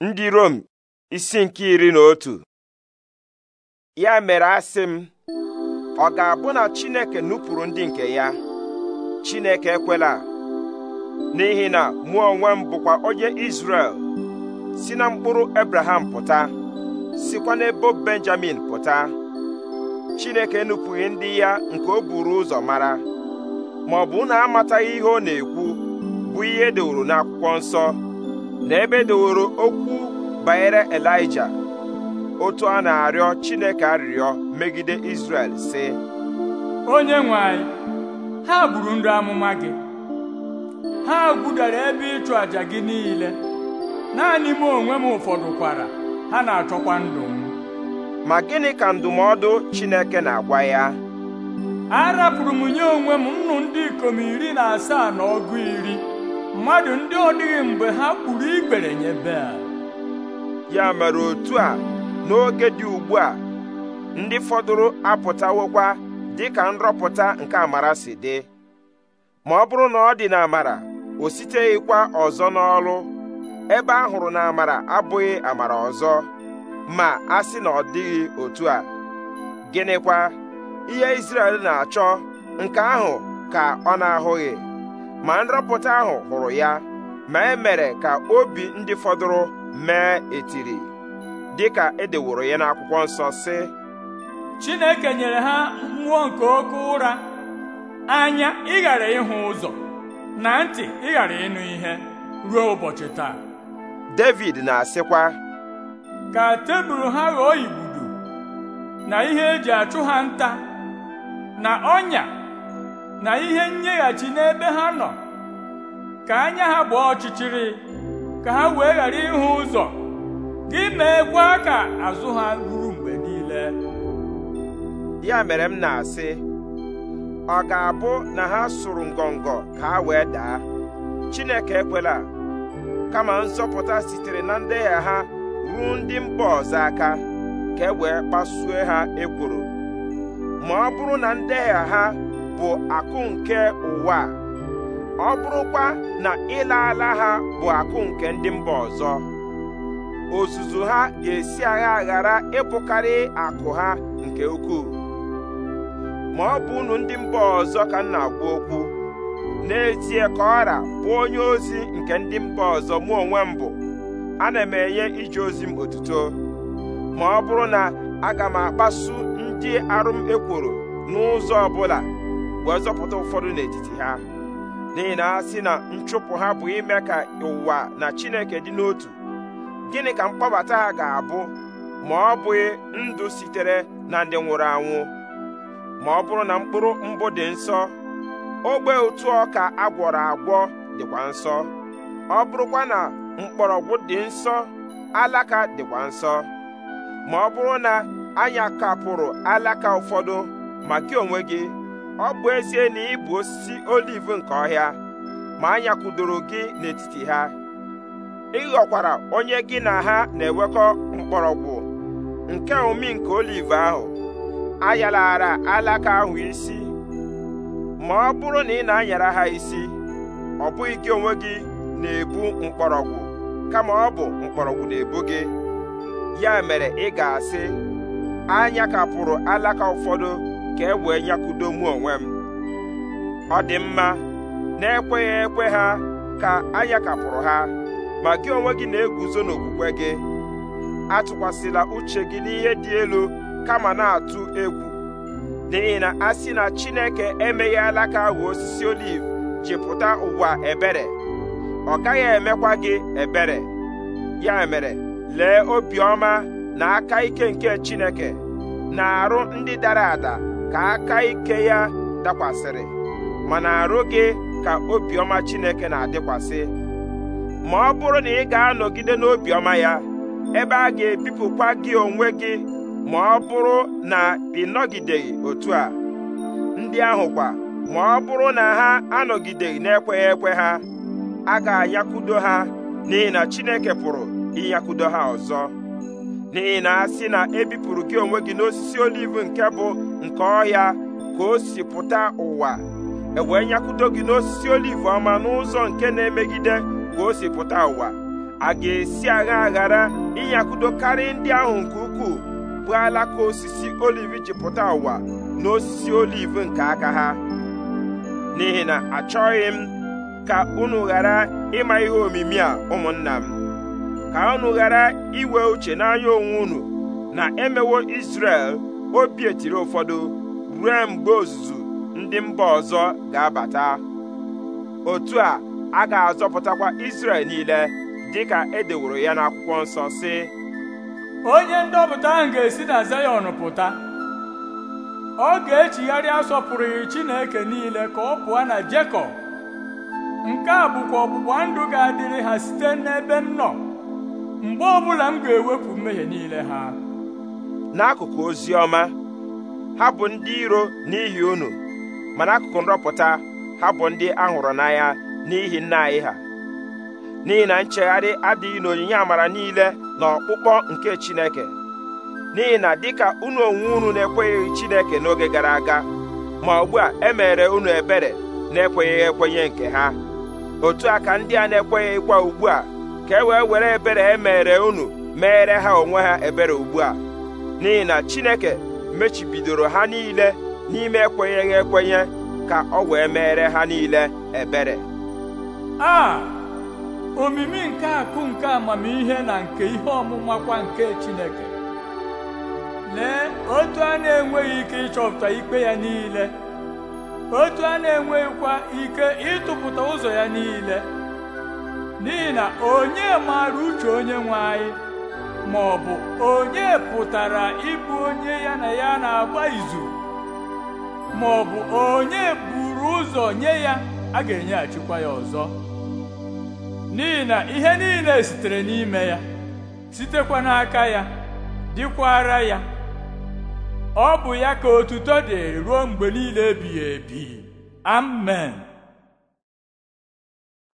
ndị Rom isi nke iri na otu ya mere asị m ọ ga-abụ na Chineke nupụrụ ndị nke ya Chineke ekwela n'ihi na mụ onwe m bụkwa onye Izrel si na mkpụrụ Abraham pụta sikwa n'ebo Benjamin pụta Chineke nupụghị ndị ya nke o buru ụzọ mara ma ọ bụ na amataghị ihe ọ na-ekwu bụ ihe edewuru n'akwụkwọ nsọ na ebe doworo okwu banyere elija otu a na-arịọ chineke arịrịọ megide Izrel sị onye nwe anyị ha gburu ndị amụma gị ha gbudara ebe ịchụ àjà gị niile naanị m onwe m ụfọdụ kwara ha na-achọkwa ndụ m ma gịnị ka ndụmọdụ Chineke na-agwa ya arapụrụ m nye onwe m nnụ ndị ikom iri na asaa na ọgụ iri mmadụ ndị ọ dịghị mgbe ha kpuru ikpere nye Bel ya mere otu a n'oge dị ugbu a ndị fọdụrụ apụtawokwa ka nrọpụta nke amara si dị ma ọ bụrụ na ọ dị na amara o siteghịkwa ọzọ n'ọrụ ebe a hụrụ na amara abụghị amara ọzọ ma a sị na ọ dịghị otu a gịnịkwa ihe Izrel na-achọ nke ahụ ka ọ na-ahụghị ma nrapụta ahụ hụrụ ya ma e mere ka obi ndị fọdụrụ mee etiri dịka edeworo ya n'akwụkwọ nsọ sị Chineke nyere ha mmụọ nke oke ụra anya ịghara ịhụ ụzọ na ntị ịghara ịnụ ihe ruo ụbọchị taa David na-asịkwa ka tebụl ha ghọọ igbudu na ihe eji achụ ha nta na ọnya na ihe nyeghachi n'ebe ha nọ ka anya ha gbaa ọchịchịrị ka ha wee ghara ịhụ ụzọ gị meekwa ka azụ ha ruru mgbe niile ya mere m na-asị ọ ga-abụ na ha sụrụ ngọngọ ka ha wee daa Chineke ekwela kama nzọpụta sitere na ndehie ha ruo ndị mba ọzọ aka ka e wee kpasuo ha ekworo ma ọ bụrụ na ha bụ akụ nke ụwa ọ bụrụkwa na ịla ala ha bụ akụ nke ndị mba ọzọ ozuzu ha ga-esi agha ghara ịbụkarị akụ ha nke ukwuu ma ọ bụ unu ndị mba ọzọ ka m na-agwa okwu n'ezie ka ọra bụ onye ozi nke ndị mba ọzọ mụ onwe m bụ ana m enye ije ozi m otuto ma ọ bụrụ na aga m akpasu ndị arụ m ekworo n'ụzọ ọbụla wee zọpụta ụfọdụ n'etiti ha n'ihi na asị na nchụpụ ha bụ ime ka ụwa na chineke dị n'otu gịnị ka mkpọbata ha ga-abụ ma ọ bụghị ndụ sitere na ndị nwụrụ anwụ ma ọ bụrụ na mkpụrụ mbụ dị nsọ ogbe otu ọka agwọrọ agwọ dịkwa nsọ ọ bụrụkwa na mgbọrọgwụ dị nsọ alaka dịkwa nsọ ma ọ bụrụ na anya kapụrụ alaka ụfọdụ ma gị onwe gị ọ bụ ezie na ị bụ osisi oliv nke ọhịa ma anya nyakwudoro gị n'etiti ha ị ghọkwara onye gị na ha na-ewekọ mkpọrọgwụ nke omi nke oliv ahụ ayalara alaka ahụ isi ma ọ bụrụ na ị na-anyara ha isi ọ bụghị gị onwe gị na-ebu mkpọrọgwụ kama ọ bụ mkpọrọgwụ na-ebu gị ya mere ị ga-asị anya kapụrụ alaka ụfọdụ ka e wee mụ onwe m ọ dị mma na-ekweghị ekwe ha ka anyakapụrụ ha ma gị onwe gị na-eguzo n'okwukwe gị atụkwasịla uche gị n'ihe dị elu kama na-atụ egwu n'ihi na a sị na Chineke emeghị alaka ahụ osisi oliv jipụta ụwa ebere ọ gaghị emekwa gị ebere ya mere lee obiọma na aka ike nke Chineke na arụ ndị dara ada ka aka ike ya dakwasịrị mana arụ gị ka obiọma Chineke na-adịkwasị ma ọ bụrụ na ị ga-anọgide n'obiọma ya ebe a ga-ebipụkwa gị onwe gị ma ọ bụrụ na ị nọgideghị otu a ndị ahụkwa ma ọ bụrụ na ha anọgideghị na-ekweghị ekwe ha a ga-ayakudo ha n'ihi na Chineke pụrụ ịnyakudo ha ọzọ n'ihi na asị na ebipụrụ gị onwe gị n'osisi oliv nke bụ nke ọhịa ka o si pụta ụwa ewee nyakwudo gị n'osisi oliv ọma n'ụzọ nke na-emegide ka o si pụta ụwa a ga-esi agha ghara ịnyakwudo karịa ndị ahụ nke ukwuu bụ alaka osisi oliv ji pụta ụwa n'osisi oliv nke aka ha n'ihi na achọghị m ka unu ghara ịma ihe omimi a ụmụnna m ka unu ghara iwe uche n'anya onwe unu na emewo Izrel obi etiri ụfọdụ ruo mgbe ozuzu ndị mba ọzọ ga-abata otu a a ga-azọpụtakwa Izrel niile dịka e deworo ya n'akwụkwọ nsọ si onye ndọpụta ahụ ga-esi na Zayọn pụta ọ ga-echigharị asọpụrụghị Chineke niile ka ọ pụọ na Jekọb nke a bụkwa ọgbụgba ga-adịrị ha site n'ebe m mgbe ọbụla m ga-ewepụ mmehie niile ha n'akụkụ ozi ọma ha bụ ndị iro n'ihi unu ma n'akụkụ nrọpụta ha bụ ndị a hụrụ n'anya n'ihi nna anyị ha n'ihi na nchegharị adịghị n'onyinye amara niile na ọkpụkpọ nke Chineke n'ihi na dịka unu onwe unu na ekweghị Chineke n'oge gara aga ma ugbu a emere unu ebere na-ekwenyeghị ekwenye nke ha otu aka ndị a na ekweghịkwa ugbu a ka e wee were ebere e mere unu meere ha onwe ha ebere ugbu a n'ihi na Chineke mechibidoro ha niile n'ime ekwenyeghị ekwenye ka ọ wee meere ha niile ebere a omimi nke akụ nke amamihe na nke ihe ọmụmakwa nke Chineke lee otu a na-enweghị ike ịchọpụta ikpe ya niile otu a na-enweghịkwa ike ịtụpụta ụzọ ya niile n'ihi na onye maara uche onye nwe anyị ma ọ bụ onye pụtara ịbụ onye ya na ya na-agba izu ma ọ bụ onye buru ụzọ nye ya a ga-enyeghachikwa enye ya ọzọ n'ihi na ihe niile sitere n'ime ya sitekwa n'aka ya dịkwara ya ọ bụ ya ka otuto dị ruo mgbe niile ebighị ebi amen